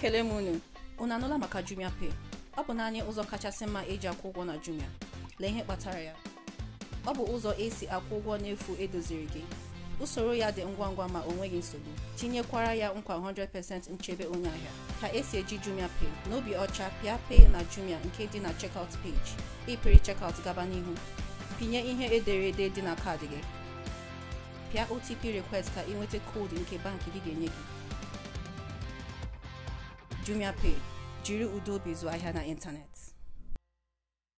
ekele m unu unu anụla maka Jumia Pay ọ bụ naanị ụzọ kachasị mma eji akwụ ụgwọ na Jumia lee ihe kpatara ya ọ bụ ụzọ esi akwụ ụgwọ n'efu edoziri gị usoro ya dị ngwa ngwa ma o nweghị nsogbu tinyekwara ya nkwa 100% nchebe onye ahịa ka esi eji Jumia Pay n'obi ọcha pịa Pay na Jumia nke dị na checkout page ịpịrị checkout gaba n'ihu pinye ihe ederede dị na kaadị gị pịa OTP request ka ị nweta koodu nke bankị gị ga-enye gị Jumia Pay, Jiri Udo Bizu Internet.